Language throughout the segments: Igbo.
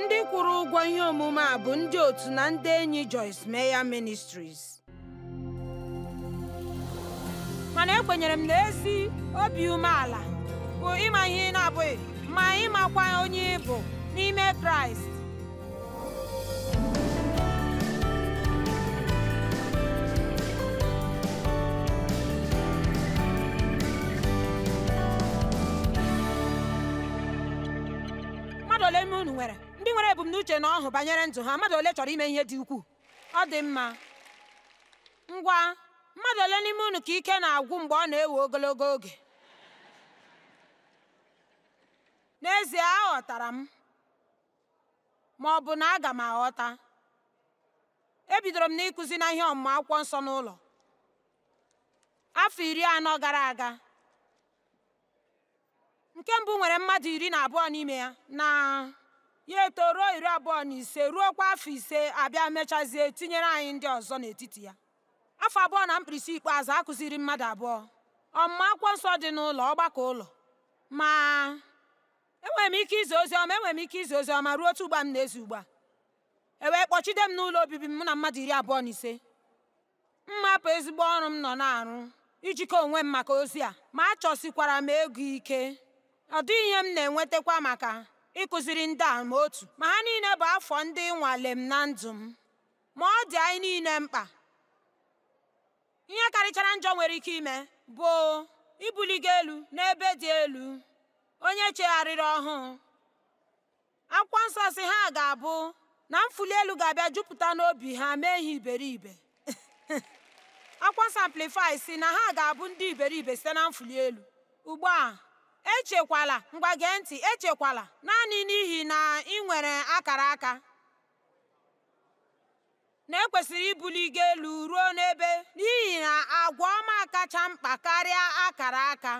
ndị kwụrụ ụgwọ ihe omume a bụ ndị otu na ndị enyi Joyce Meya Ministries mana ekwenyere m na ezi obi umeala bụ ịma ihe ị na-abụghị ma ịmakwa onye ịbụ n'ime Kraịst mmadụ ole unu nwere ndị nwere ebumnuche na ọhụ banyere ndụ ha mmadụ ole chọrọ ime ihe dị ukwuu ọ dị mma ngwa mmadụ ole n'ime unu ka ike na-agwụ mgbe ọ na-ewe ogologo oge n'ezie aghọtara m ma ọ bụ na aga m aghọta ebidoro m n'ịkụzi na ihe ọmụmụ akwụkwọ nsọ n'ụlọ afọ iri anọ gara aga nke mbụ nwere mmadụ iri na abụọ n'ime ya na ya eto ruo iri abụọ na ise ruokwa afọ ise abịa mechazie tinyere anyị ndị ọzọ n'etiti ya afọ abụọ na mkpirisi ikpeazụ akụziri mmadụ abụọ ọmụma akwụkwọ nsọ dị n'ụlọ ọgbakọ ụlọ ma enwere m ike izi ozi ọma enwere m ike izi ozi ọma ruo otu ugba m na-ezi ugbu a e wee kpọchide m n'ụlọ obibi m na mmadụ iri abụọ na ise bụ ezigbo ọrụ m nọ na-arụ ijikọ onwe m maka ozi a ma achọsikwara m ego ike ọ dịghị ihe m na-enwetakwa maka ịkụziri ndị a ma otu ma ha niile bụ afọ ndị nwale m na ndụ m ma ọ dị anyị niile mkpa ihe karịchara njọ nwere ike ime bụ ibuligo elu n'ebe dị elu onye chegharịrị ọhụụ akwụkwọ nsọ si ha ga-abụ na mfuli elu ga-abịa jupụta n'obi ha mee ihe iberibe akwụkwọ nsọ si na ha ga-abụ ndị iberibe site na mfuli elu ugbu a echekwala ngwa gee ntị echekwala naanị n'ihi na ị nwere akara aka na ekwesịrị ibuli gị elu ruo n'ebe n'ihi na agwa ọma kacha mkpa karịa akara aka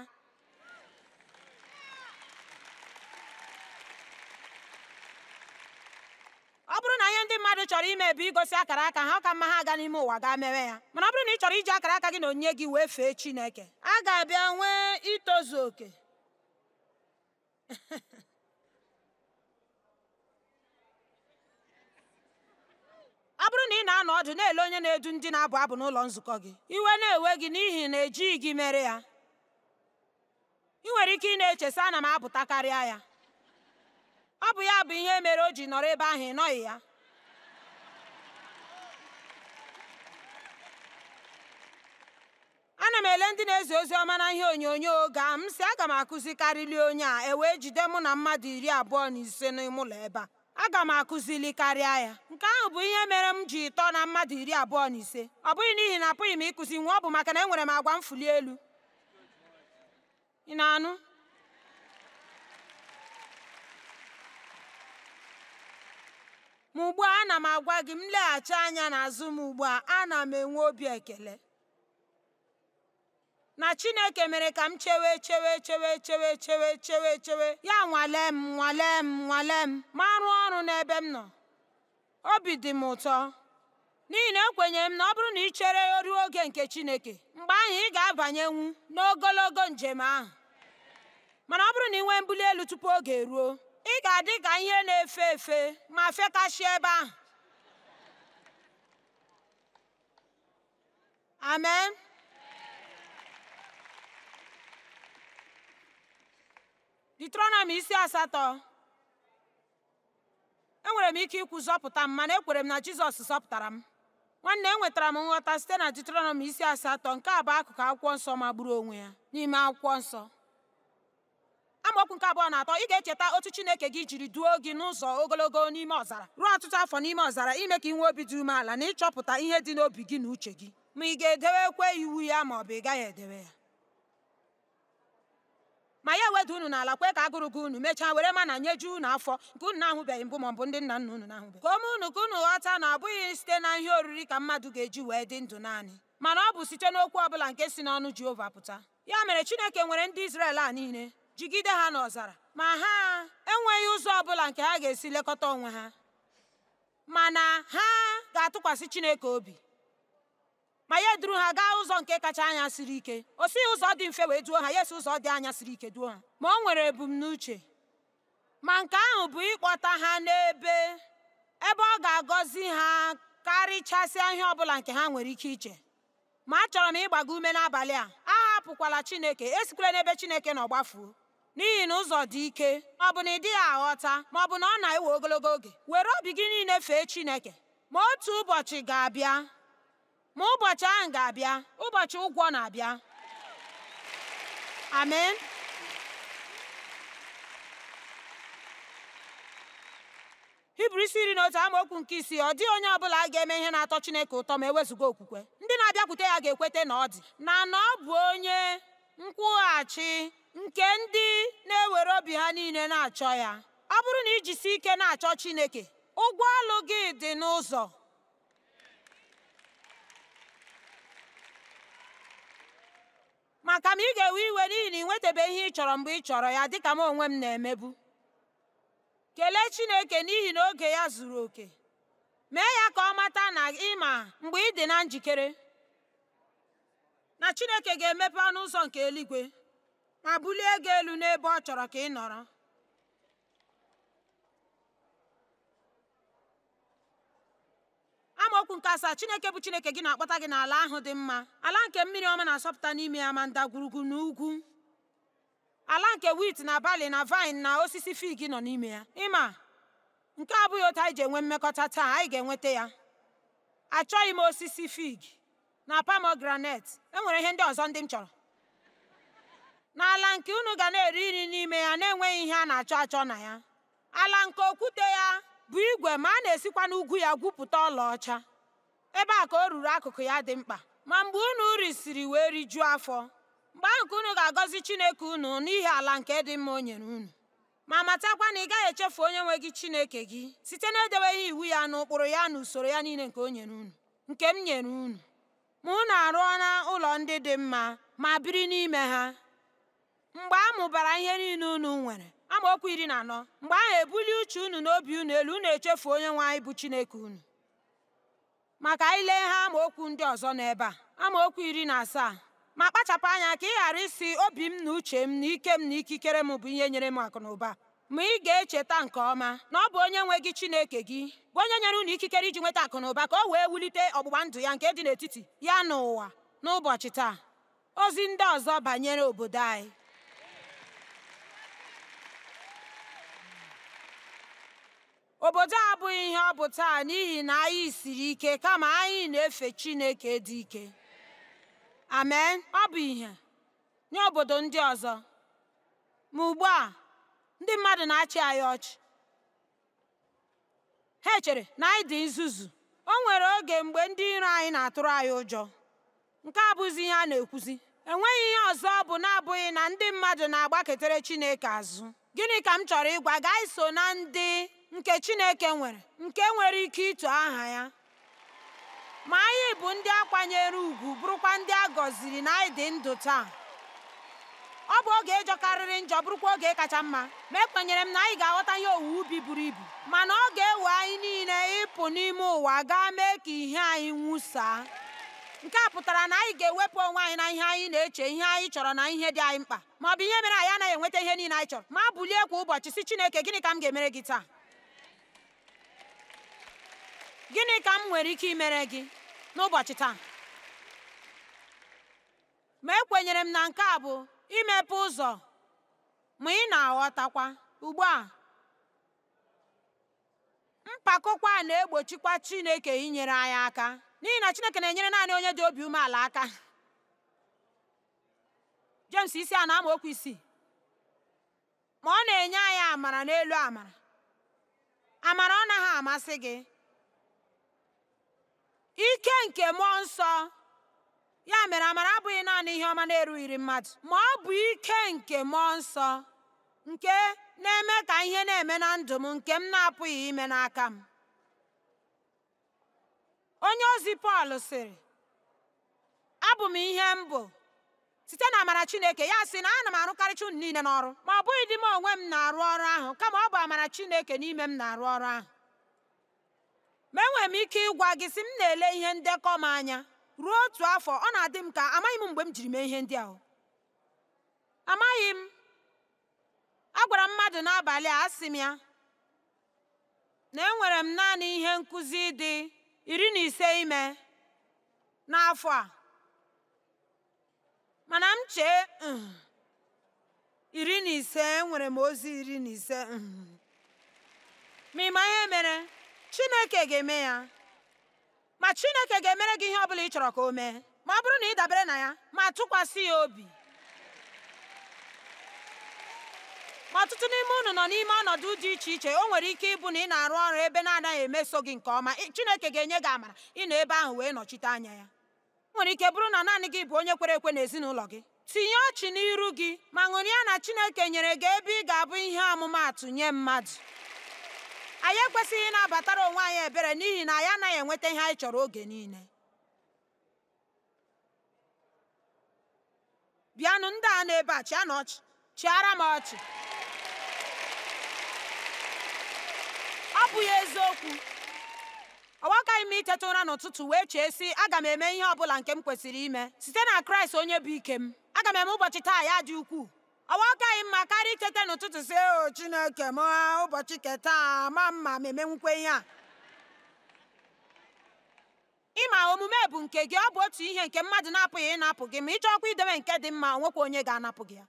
ọ bụrụ na ihe ndị mmadụ chọrọ ime bụ igosi akara aka ha ka mma ha aga n'ime ụwa gaa mewe ya mana ọ bụrụ na ị chọrọ iji akara aka gị na onye gị wee fee Chineke a ga-abịa nwee itozu oke ọ bụrụ na ị na-anọ ọdụ na-ele onye na-edu ndị na-abụ abụ n'ụlọ nzukọ gị iwe na-ewe gị n'ihi na ejighị gị mere ya ị nwere ike ị na-eche sị ana m apụta karịa ya ọ bụ ya bụ ihe mere o ji nọrọ ebe ahụ ị nọghị ya ana m ele ndị na-ezi ozi ọma na ihe onyonyo oge a m si aga m akụzikarịli onye a e wee jide mụ na mmadụ iri abụọ na ise n'ime ụlọ ebe a aga m akụzili karịa ya nke ahụ bụ ihe mere m ji tọọ na mmadụ iri abụọ na ise ọ bụghị n'ihi na apụghị m ịkụzi nwa ọ bụ maka na enwere m agwa mfuli elu ịna anụ ma ugbu a ana m agwa gị m leghachi anya n'azụ m ugbu a ana m enwe obi ekele na Chineke mere ka m chewe chewe chewe chewe chewe chewe chewe ya nwale m nwale m nwale m ma rụọ ọrụ n'ebe m nọ obi dị m ụtọ n'ihi na ekwenyere m na ọ bụrụ na ị chere ruo oge nke Chineke mgbe ahụ ị ga-abanyenwu n'ogologo njem ahụ mana ọ bụrụ na ị nwee mbuli elu tupu oge ruo ị ga-adị ka ihe na-efe efe ma fekasị ebe ahụ amen Deuteronomy isi asatọ enwere m ike ikwu zọpụta m mana ekwere m na Jizọs zọpụtara m nwanne enwetara m nghọta site na Deuteronomy isi asatọ nke a bụ akụkụ akwụkwọ nsọ magburu onwe ya n'ime akwụkwọ nsọ amaokwu nke abụọ na atọ ị ga-echeta otu Chineke gị jiri duo gị n'ụzọ ogologo n'ime ọzara ruo ọtụtụ afọ n'ime ọzara ime ka ị nwee obi dị umeala na ịchọpụta ihe dị n'obi gị na uche gị ma ị ga-edewekwa iwu ya ma ọ bụ ị gaghị edewe ya ma ya weda unu n'ala kwe ka agụrụ gị unu mechaa were mana nyeju unu afọ nke unu na-ahụbeghị mbụ maọbụ ndị nna nna unu na-ahụbeghị ka ome unu ka unu ghọta na ọ bụghị site na ihe oriri ka mmadụ ga-eji wee dị ndụ naanị mana ọ bụ site n'okwu ọbụla nke si n'ọnụ Jehova pụta ya mere Chineke nwere ndị Izrel a niile jigide ha n'ọzara ma ha enweghị ụzọ ọbụla nke ha ga-esi lekọta onwe ha mana ha ga-atụkwasị Chineke obi ma ya eduru ha gaa ụzọ nke kacha anya siri ike o sighị ụzọ dị mfe wee duo ha ya si ụzọ dị anya siri ike duo ha ma o nwere ebumnuche ma nke ahụ bụ ịkpọta ha n'ebe ebe ọ ga-agọzi ha karịchasịa ihe ọbụla nke ha nwere ike iche ma achọrọ m ịgbago ume n'abalị a ahapụkwala chineke esikwela n'ebe chineke nọ gbafuo n'ihi na ụzọ dị ike ọ bụ na ị dịghị aghọta ma ọ bụ na ọ na-ewe ogologo oge were obi gị niile fee chineke ma otu ụbọchị ga-abịa ma ụbọchị ahụ ga-abịa ụbọchị ụgwọ na-abịa amen hibru isi iri na otu amaokwu nke isii ọ dịghị onye ọbụla ga-eme ihe na-atọ chineke ụtọ ma ewezuga okwukwe ndị na-abịakwute ya ga-ekweta na ọ dị na na ọ bụ onye nkwụghachi nke ndị na-ewere obi ha niile na-achọ ya ọ bụrụ na ijisi ike na-achọ chineke ụgwọ ọlụ gị dị n'ụzọ maka m ị ga-ewe iwe n'ihi na ị nwetabeghị ihe ị chọrọ mgbe ị chọrọ ya dịka m onwe m na-emebu kelee Chineke n'ihi na oge ya zuru oke mee ya ka ọ mata na ịma mgbe ị dị na njikere na Chineke ga-emepe ọnụ ụzọ nke eluigwe ma bulie gị elu n'ebe ọ chọrọ ka ị nọrọ amaokwu nke asaa chineke bụ chineke gị na-akpọta gị n'ala ahụ dị mma ala nke mmiri ọma na-asọpụta n'ime ya ma ndagwurugwu na ugwu ala nke wit na bali na vine na osisi fig nọ n'ime ya ịma nke a abụghị otu anyị ji enwe mmekọta taa anyị ga-enweta ya achọghị m osisi fig na pomegranate enwere ihe ndị ọzọ ndị m chọrọ n'ala nke unu ga na-eri nri n'ime ya na-enweghị ihe a na-achọ achọ na ya ala nke okwute ya bụ igwe ma a na-esikwa n'ugwu ya gwupụta ọlaọcha ebe a ka o ruru akụkụ ya dị mkpa ma mgbe unu risiri wee rijuo afọ mgbe ahụ ka unu ga-agọzi chineke unu n'ihi ala nke dị mma o nyere unu ma matakwa na ị gaghị echefu onye nwe gị chineke gị site na edebeghị iwu ya na ụkpụrụ ya na usoro ya niile nke o nyere unu nke m nyere unu ma unu arụọ na ụlọ ndị dị mma ma biri n'ime ha mgbe a mụbara ihe niile unu nwere amaokwu iri na anọ mgbe ahụ ebuli uche unu na obi unu elu unu echefu onye nwe anyị bụ chineke unu maka ile ha amaokwu ndị ọzọ n'ebe a amaokwu iri na asaa ma kpachapụ anya ka ị ghara isi obi m na uche m na ike m na ikikere m bụ ihe nyere m akụ na ụba ma ị ga-echeta nke ọma na ọ bụ onye nwe gị chineke gị bụ onye nyere unu ikikere iji nweta akụ na ụba ka o wee wulite ọgbụgba ndụ ya nke dị n'etiti ya n'ụwa n'ụbọchị taa ozi ndị ọzọ banyere obodo anyị Obodo a abụghị ihe ọ bụ taa n'ihi na anyị siri ike kama anyị na-efe Chineke dị ike. Amen. Ọ bụ ihe nye obodo ndị ọzọ. Ma ugbu a, ndị mmadụ na-achị anyị ọchị. Ha chere na anyị dị nzuzu. O nwere oge mgbe ndị iro anyị na-atụrụ anyị ụjọ. Nke a abụghịzi ihe a na-ekwuzi. Enweghị ihe ọzọ bụ na-abụghị na ndị mmadụ na-agbaketara Chineke azụ. Gịnị ka m chọrọ ịgwa gị? Anyị so na ndị nke Chineke nwere nke nwere ike ịtụ aha ya ma anyị bụ ndị akwanyere ugwu ùgwù bụrụkwa ndị a gọziri na anyị dị ndụ taa ọ bụ oge ịjọkarịrị njọ bụrụkwa oge kacha mma ma ekwenyere m na anyị ga-aghọta ihe owuwe ubi buru ibu mana ọ ga-ewe anyị niile ịpụ n'ime ụwa gaa mee ka ihe anyị nwụsaa nke a pụtara na anyị ga-ewepụ onwe anyị na ihe anyị na-eche ihe anyị chọrọ na ihe dị anyị mkpa ma ọ bụ ihe mere anyị anaghị enweta ihe niile anyị chọrọ ma bulie kwa ụbọchị si Chineke gịnị ka m ga-emere gị taa gịnị ka m nwere ike imere gị n'ụbọchị taa ma ekwenyere m na nke a bụ imepe ụzọ ma ị na-aghọtakwa ugbu a mpakokwa a na-egbochikwa Chineke inyere anyị aka n'ihi na Chineke na-enyere naanị onye dị obi umeala aka James isi a na okwu isii ma ọ na-enye anyị amara n'elu amara amara ọ naghị amasị gị ike nke mmụọ nsọ ya mere amara abụghị naanị ihe ọma na-erughiri mmadụ ma ọ bụ ike nke mmụọ nsọ nke na-eme ka ihe na-eme na ndụ m nke m na-apụghị ime n'aka m onye ozi Pọl sịrị abụ m ihe m bụ site na amara Chineke ya sị na ana m arụkarịcha ụnụ niile n'ọrụ ma ọ bụghị di m onwe m na-arụ ọrụ ahụ kama ọ bụ amara Chineke n'ime m na-arụ ọrụ ahụ ma enwere m ike ịgwa gị si m na-ele ihe ndekọ m anya ruo otu afọ ọ na-adị m ka amaghị mgbe m jiri mee ihe ndị ahụ amaghị m a gwara mmadụ n'abalị a asị m ya na enwere m naanị ihe nkuzi dị iri na ise ime n'afọ a mana m chee um, iri na ise enwere m ozi iri na ise um. ma ị ihe mere chineke ga-eme ya ma chineke ga-emere gị ihe ọ bụla ị chọrọ ka o mee ma ọ bụrụ na ị dabere na ya ma tụkwasị ya obi ma ọtụtụ n'ime unu nọ n'ime ọnọdụ dị iche iche o nwere ike ịbụ na ị na-arụ ọrụ ebe na-anaghị emeso gị nke ọma chineke ga-enye gị amara ị nọ ebe ahụ wee nọchite anya ya nwere ike bụrụ na naanị gị bụ onye kwere ekwe n'ezinụlọ gị tinye ọchị n'iru gị ma ṅụrịa na chineke nyere gị ebe ị ga-abụ ihe ọmụmaatụ nye mmadụ anyị ekwesịghị ịnabatara onwe anyị ebere n'ihi na anyị anaghị enweta ihe anyị chọrọ oge niile bịanụ ndị a nọ a na ọchị chịara m ọchị ọ bụghị ya eziokwu ọwakaghị m iteta ụra n'ụtụtụ wee chee sị aga m eme ihe ọ bụla nke m kwesịrị ime site na kraịst onye bụ ike m aga m eme ụbọchị taa ya dị ukwuu ọwa akaghị mma karịa icheta n'ụtụtụ si o chineke m ụbọchị keta ma mma m'eme nkwenye ihe a ịma omume bụ nke gị ọ bụ otu ihe nke mmadụ na-apụghị ịnapụ gị ma ị chọọkwa idebe nke dị mma nwekwa onye ga-anapụ gị ya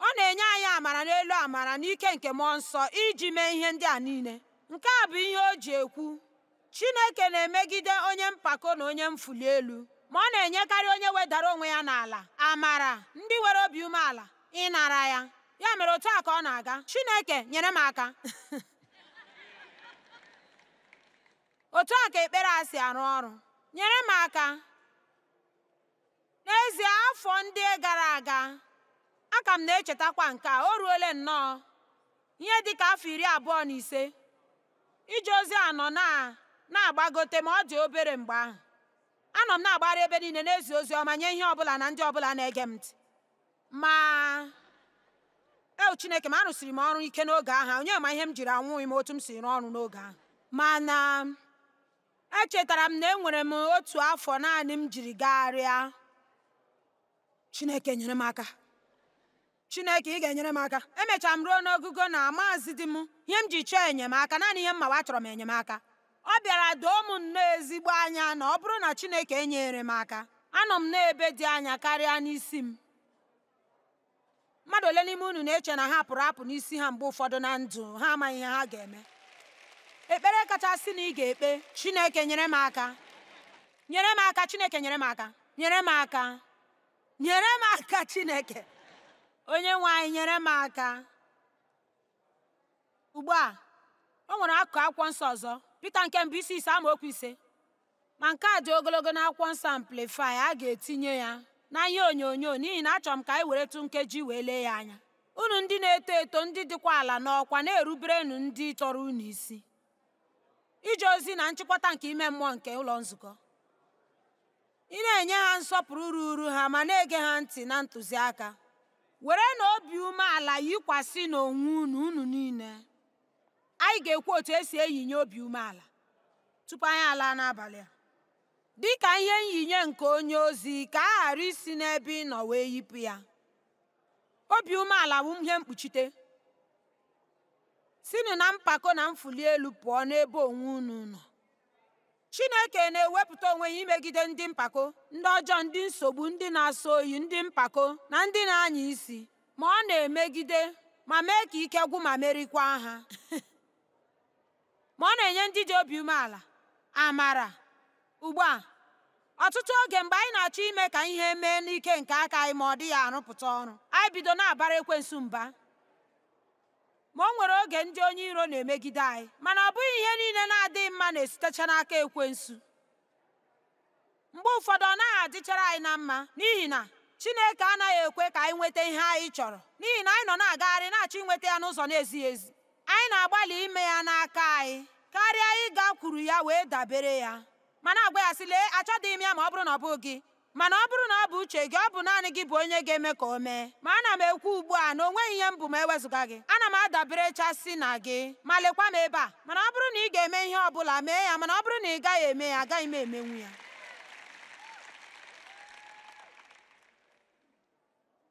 ọ na-enye anyị amara n'elu amara n'ike nke mmụọ nsọ iji mee ihe ndị a niile nke a bụ ihe o ji ekwu Chineke na-emegide onye mpako na onye mfulu elu ma ọ na-enyekarị onye wedara onwe ya n'ala amara ndị nwere obi umeala ịnara ya. Ya mere otu a ọ na-aga. Chineke nyere m aka. otu a ka ekpere a si arụ ọrụ. Nyere m aka. N'ezie afọ ndị gara aga a ka m na-echetakwa nke a o ruole nnọọ ihe dị ka afọ iri abụọ na ise ije ozi anọ na na-agbagote ma ọ dị obere mgbe ahụ anọ m na-agbara ebe niile na-ezi ozi ọma nye ihe ọbụla na ndị ọbụla na-ege m ntị ma eu chineke ma arụsịrị m ọrụ ike n'oge ahụ onye ma ihe m jiri anwụghị m otu m si rụọ ọrụ n'oge ahụ mana echetara m na enwere m otu afọ naanị m jiri gagharịa chineke nyere m aka chineke ị ga-enyere m aka emechara m ruo n'ogugo na maazị di m ihe m ji chọọ enyemaka naanị ihe m mawa chọrọ m enyemaka ọ bịara doo m nnọọ ezigbo anya na ọ bụrụ na chineke enyere m aka anọ m na ebe dị anya karịa n'isi m mmadụ ole n'ime unu na-eche na ha pụrụ apụ n'isi ha mgbe ụfọdụ na ndụ ha amaghị ha ga-eme ekpere kachasị na ị ga-ekpe chineke nyere m aka nyere m aka chineke nyere m aka nyere m aka nyere m aka chineke onye nwe anyị nyere m aka ugbu a o nwere akụkụ akwụkwọ nsọ ọzọ Pita nke mbụ isi ise amaokwu ise ma nke a dị ogologo n'akwụkwọ nsọ Amplify a ga-etinye ya na ihe onyonyo n'ihi na achọrọ m ka anyị weretụ nkeji wee lee ya anya unu ndị na-eto eto ndị dịkwa ala n'ọkwa na-eruberenu ndị tọrọ unu isi ije ozi na nchịkọta nke ime mmụọ nke ụlọ nzukọ ị na-enye ha nsọpụrụ uru ha ma na-ege ha ntị na ntụziaka were na obi umeala yikwasị n'onwe unu unu niile anyị ga-ekwu otu esi eyinye obi umeala tupu anyị alaa n'abalị a Dịka ihe nyinye nke onye ozi ka a ghara isi n'ebe ị nọ wee yipụ ya obi umeala bụ ihe mkpuchite sinụ na mpako na mfuli elu pụọ n'ebe onwe unu nọ chineke na-ewepụta onwe ya imegide ndị mpako ndị ọjọọ ndị nsogbu ndị na-asọ oyi ndị mpako na ndị na-anya isi ma ọ na-emegide ma mee ka ike gwụ ma merikwa ha ma ọ na-enye ndị dị obi umeala amara ugbu a ọtụtụ oge mgbe anyị na-achọ ime ka ihe mee n'ike nke aka anyị ma ọ dịghị arụpụta ọrụ anyị bido na-abara ekwensu mba ma o nwere oge ndị onye iro na-emegide anyị mana ọ bụghị ihe niile na-adịghị mma na-esitecha n'aka ekwensu mgbe ụfọdụ ọ naghị adịchara anyị na mma n'ihi na Chineke anaghị ekwe ka anyị nweta ihe anyị chọrọ n'ihi na anyị nọ na-agagharị na-achọ inweta ya n'ụzọ na-ezighị ezi anyị na-agbalị ime ya n'aka anyị karịa kwuru ya wee dabere ya mana na-agwa ya sị lee achọghị m ya ma ọ bụrụ na ọ bụ gị mana ọ bụrụ na ọ bụ uche gị ọ bụ naanị gị bụ onye ga-eme ka o mee ma ana m ekwu ugbu a na onweghị ihe m bụ ma ewezụga gị ana m adabere chasị na gị ma lekwa m ebe a mana ọ bụrụ na ị ga-eme ihe ọ bụla mee ya mana ọ bụrụ na ị gaghị eme ya agaghị m emenwu ya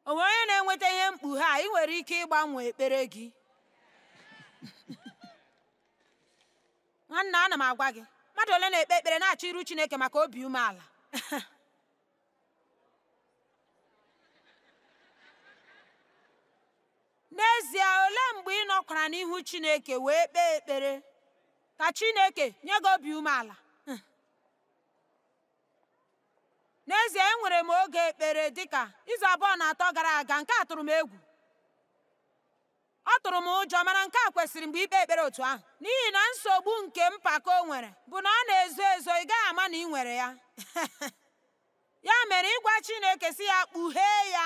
o onye na-enweta ihe mkpughe a ị nwere ike ịgbanwe ekpere gị nwanne ana m agwa gị mmadụ ole na-ekpe ekpere na-achọ iru chineke maka obi umeala n'ezie ole mgbe ị nọkwara n'ihu chineke wee kpee ekpere ka chineke nye gị obi umeala n'ezie enwere m oge ekpere dịka izu abụọ na atọ gara aga nke a tụrụ m egwu ọ tụrụ m ụjọ mana nke a kwesịrị mgbe ikpe ekpere otu ahụ n'ihi na nsogbu nke mpako nwere bụ na ọ na-ezo ezo ị gaghị ama na ị nwere ya ya mere ịgwa Chineke si ya kpughee ya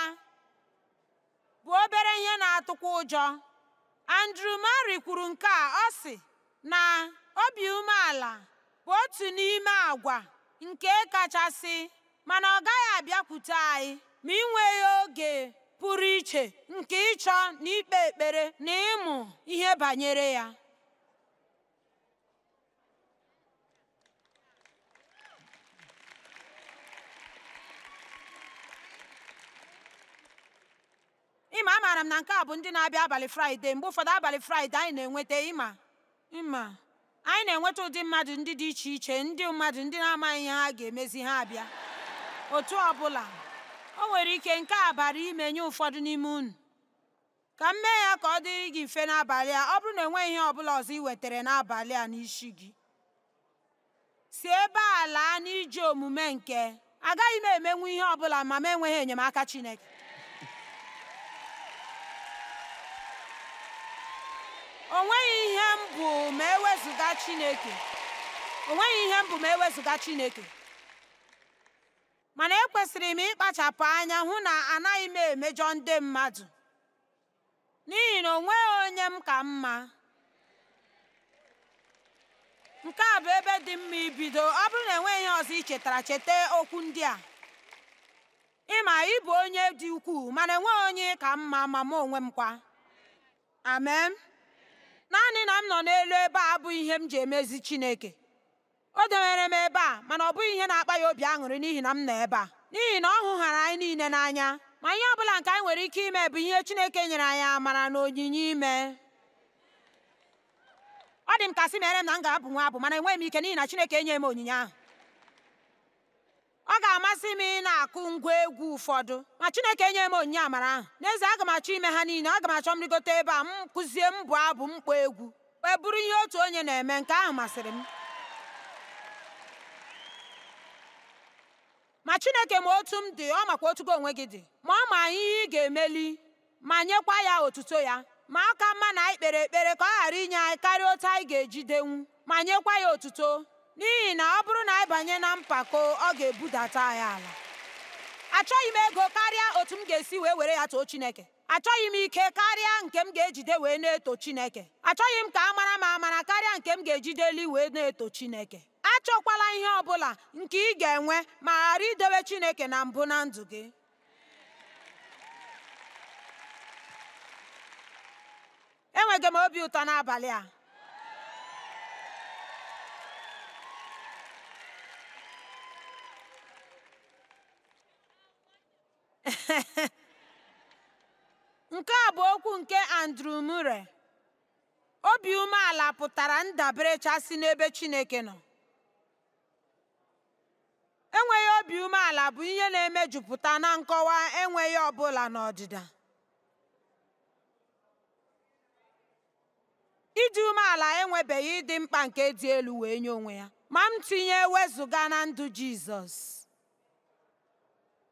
bụ obere ihe na-atụkwa ụjọ Andrew Murray kwuru nke a ọ sị na obi umeala bụ otu n'ime àgwà nke kachasị mana ọ gaghị abịakwute anyị ma ị nweghị oge pụrụ iche nke ịchọ na ikpe ekpere na ịmụ ihe banyere ya ịma amaara m na nke a bụ ndị na-abịa abalị fraịde mgbe ụfọdụ abalị fraịde anyị na-enweta ịma anyị na-enweta ụdị mmadụ ndị dị iche iche ndị mmadụ ndị na-amaghị ha ga-emezi ha abịa otu ọ o nwere ike nke a bara ime nye ụfọdụ n'ime unu ka m mee ya ka ọ dịrị gị mfe n'abalị a ọ bụrụ na enweghị ihe ọbụla ọzọ i wetara n'abalị a n'isi gị si ebe a laa n'iji omume nke agaghị m emenwu ihe ọbụla ma m enweghị enyemaka Chineke o nweghị ihe m bụ e m bụ ma ewezuga Chineke mana ekwesịrị m ịkpachapụ anya hụ na anaghị m emejọ ndị mmadụ n'ihi na o nweghị onye m ka mma nke a bụ ebe dị mma ibido ọ bụrụ na enweghị ihe ọzọ i chetara cheta okwu ndị a ịma ị bụ onye dị ukwuu mana enweghị onye ka mma ma m onwe m kwa amen naanị na m nọ n'elu ebe a abụ ihe m ji emezi Chineke o dewere m ebe a mana ọ bụghị ihe na-akpa ya obi aṅụrị n'ihi na m nọ ebe a n'ihi na ọ hụghara anyị niile n'anya ma ihe ọ bụla nke anyị nwere ike ime bụ ihe Chineke nyere anyị amara na onyinye ime ọ dị m ka sị mere m na m ga-abụ nwa abụ mana enweghị m ike n'ihi na Chineke enye m onyinye ahụ ọ ga-amasị m ị na-akụ ngwa egwu ụfọdụ ma Chineke enye m onyinye amara ahụ n'ezie aga m achọ ime ha niile aga m achọ m rigote ebe a m kụzie m bụ abụ mkpọ egwu wee bụrụ ihe otu onye na-eme nke ahụ masịrị m ma chineke ma otu m dị ọ makwa otugo onwe gị dị ma ọ ma ihe ị ga-emeli ma nyekwa ya otuto ya ma aka mma na anyị kpere ekpere ka ọ ghara inye anyị karịa otu anyị ga-ejidenwu ma nyekwa ya otuto n'ihi na ọ bụrụ na anyị banye na mpako ọ ga-ebudata anyị ala achọghị m ego karịa otu m ga-esi wee were ya too chineke achọghị m ike karịa nke m ga-ejide wee na-eto chineke achọghị m ka a mara m amara karịa nke m ga-ejide wee na-eto chineke achọkwala ihe ọ bụla nke ị ga-enwe ma ghara idowe chineke na mbụ na ndụ gị enweghị m obi ụtọ n'abalị a nke Andrew Murray obi umeala pụtara ndabere chasị n'ebe Chineke nọ enweghị obi umeala bụ ihe na-emejupụta na nkọwa enweghị ọbụla n'ọdịda ịdị umeala enwebeghị ịdị mkpa nke dị elu wee nye onwe ya ma m tinye wezụga na ndụ Jizọs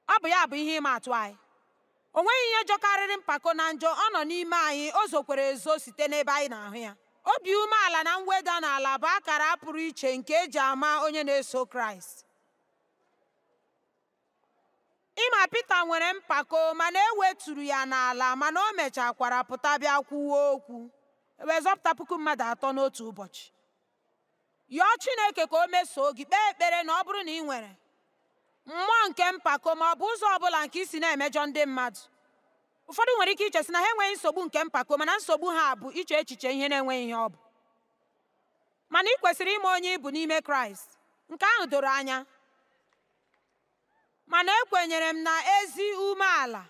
ọ bụ ya bụ ihe ịma atụ anyị o nweghị ihe jọkarịrị mpako na njọ ọ nọ n'ime anyị o zokwere ezo site n'ebe anyị na-ahụ ya obi umeala na mweda n'ala bụ akara pụrụ iche nke eji ama onye na-eso kraịst ịma pita nwere mpako mana e weturu ya n'ala mana o mechakwara pụta bịa kwuo okwu wee zọpụta puku mmadụ atọ n'otu ụbọchị yọọ chineke ka o mesoo gị kpee ekpere na ọ bụrụ na ị nwere mmụọ nke mpako ma ọ bụ ụzọ ọ bụla nke isi na-emejọ ndị mmadụ ụfọdụ nwere ike ichesị na ha enweghị nsogbu nke mpako mana nsogbu ha bụ iche echiche ihe na-enweghị ihe ọ bụ mana ị kwesịrị ime onye ịbụ n'ime kraịst nke ahụ doro anya mana ekwenyere m na ezi umeala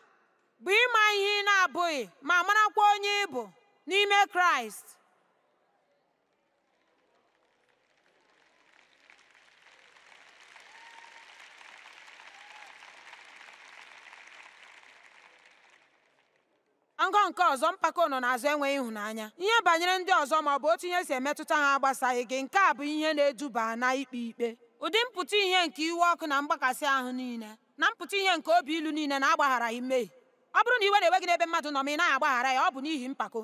bụ ịma ihe ị na-abụghị ma marakwa onye ịbụ n'ime kraịst Ngọ nke ọzọ mpako nọ n'azụ enweghị ịhụnanya ihe banyere ndị ọzọ ma ọ bụ otu ihe si emetụta ha agbasaghị gị nke a bụ ihe na-eduba na ikpe ikpe ụdị mpụta ihe nke iwe ọkụ na mgbakasị ahụ niile na mpụta ihe nke obi ilu niile na-agbagharaghị mmehie ọ bụrụ na iwe na-ewe gị n'ebe mmadụ nọ ma ị naghị agbaghara ya ọ bụ n'ihi mpako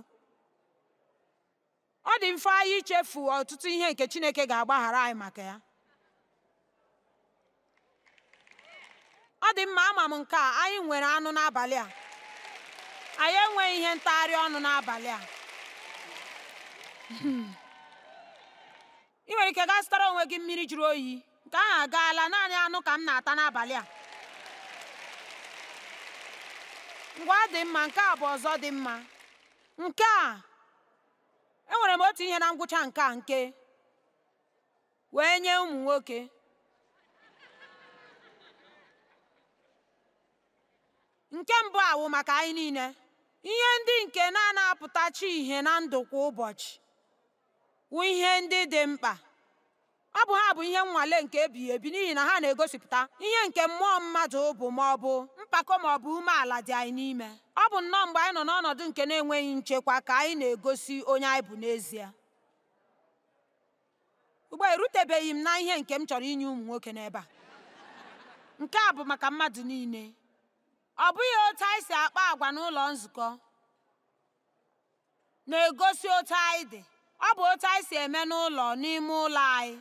ọ dị mfe anyị ichefu ọtụtụ ihe nke Chineke ga-agbaghara anyị maka ya ọ dị mma ama m nke a anyị nwere anụ n'abalị a anyị enweghị ihe ntagharị ọnụ n'abalị a hmm. ị nwere ike gaa zụtara onwe gị mmiri jụrụ oyi nke ahụ agaala naanị anụ ka m na-ata n'abalị a ngwa dị mma nke a bụ ọzọ dị mma nke a enwere m otu ihe na ngwụcha nke a nke wee nye ụmụ nwoke nke mbụ awụ maka anyị niile ihe ndị nke na na-apụtachi ihe na ndụ kwa ụbọchị wụ ihe ndị dị mkpa ọ bụ ha bụ ihe nnwale nke ebighi ebi n'ihi na ha na-egosipụta ihe nke mmụọ mmadụ bụ ma ọ bụ mpako ma ọ bụ umeala dị anyị n'ime ọ bụ nnọọ mgbe anyị nọ n'ọnọdụ nke na-enweghị nchekwa ka anyị na-egosi onye anyị bụ n'ezie ugbu a erutebeghị m na ihe nke m chọrọ inye ụmụ nwoke n'ebe a nke a bụ maka mmadụ niile ọ bụghị otu anyị si akpa agwa n'ụlọ nzukọ na-egosi otu anyị dị ọ bụ otu anyị si eme n'ụlọ n'ime ụlọ anyị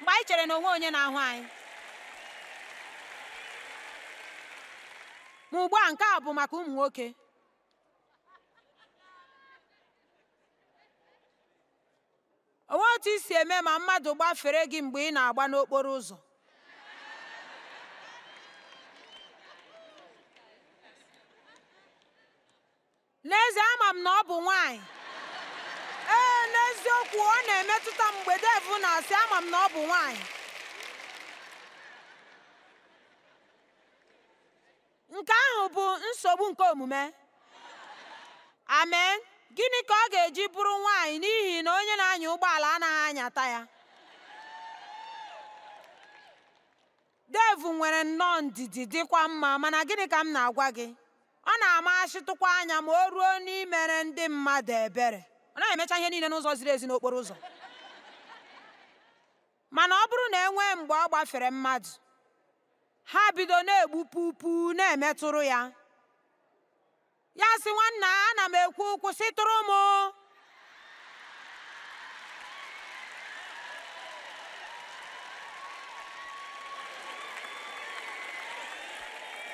mgbe anyị chere na onwe onye na-ahụ anyị ma ugbu a nke a bụ maka ụmụ nwoke onwe otu isi eme ma mmadụ gbafere gị mgbe ị na-agba n'okporo ụzọ n'ezie ama m na ọ bụ nwanyị ee n'eziokwu ọ na-emetụta mgbe devụ na-asị ama m na ọ bụ nwanyị nke ahụ bụ nsogbu nke omume amen gịnị ka ọ ga-eji bụrụ nwanyị n'ihi na onye na-anya ụgbọala anaghị anyata ya Devụ nwere nnọọ ndidi dịkwa mma mana gịnị ka m na-agwa gị ọ na-amachịtụkwa anya ma o ruo n'imere ndị mmadụ ebere ọ na emecha ihe niile n'ụzọ ziri ezi n'okporo ụzọ mana ọ bụrụ na enwe mgbe ọ gbafere mmadụ ha bido na-egbu pupu na-emetụrụ ya ya sị nwanna ana m ekwu kwụsịtụrụ m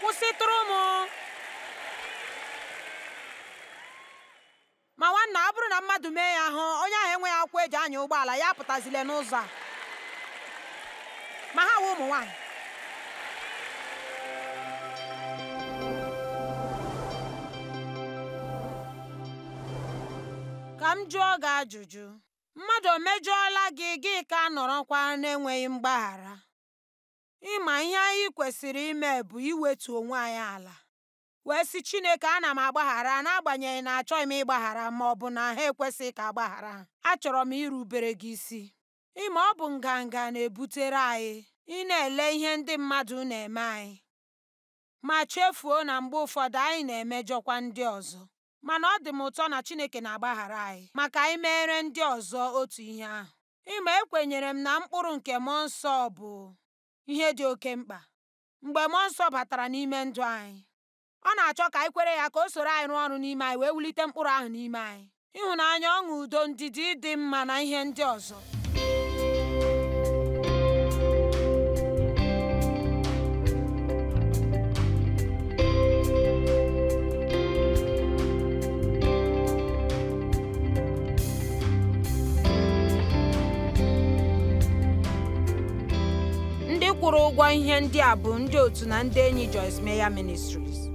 kwụsịtụrụ m ọ bụrụ na mmadụ mee ya hụ onye ahụ enweghị akwụkwọ eji anya ụgbọala ya apụtazile n'ụzọ a ma ha wụ ụmụ nwanyị. ka m jụọ gị ajụjụ mmadụ o mejọọla gị gị ka a nọrọkwa na mgbaghara ịma ihe anyị kwesịrị ime bụ iwetu onwe anyị ala wee sị Chineke ana m agbaghara n'agbanyeghị na achọghị m ịgbaghara ma ọ bụ na ha ekwesịghị ka agbaghara achọrọ m irubere gị isi ịma ọ bụ nganga na-ebutere anyị ị na-ele ihe ndị mmadụ na-eme anyị ma chefuo na mgbe ụfọdụ anyị na-emejọkwa ndị ọzọ mana ọ dị m ụtọ na Chineke na-agbaghara anyị maka anyị meere ndị ọzọ otu ihe ahụ ịma ekwenyere m na mkpụrụ nke mụọ nsọ bụ ihe dị oke mkpa mgbe mmụọ nsọ batara n'ime ndụ anyị ọ na-achọ ka anyị kwere ya ka o soro anyị rụọ ọrụ n'ime anyị wee wulite mkpụrụ ahụ n'ime anyị ịhụnanya ọṅụ udo ndidi dị mma na ihe ndị ọzọ ndị kwụrụ ụgwọ ihe ndị a bụ ndị otu na ndị enyi Joyce Meya Ministries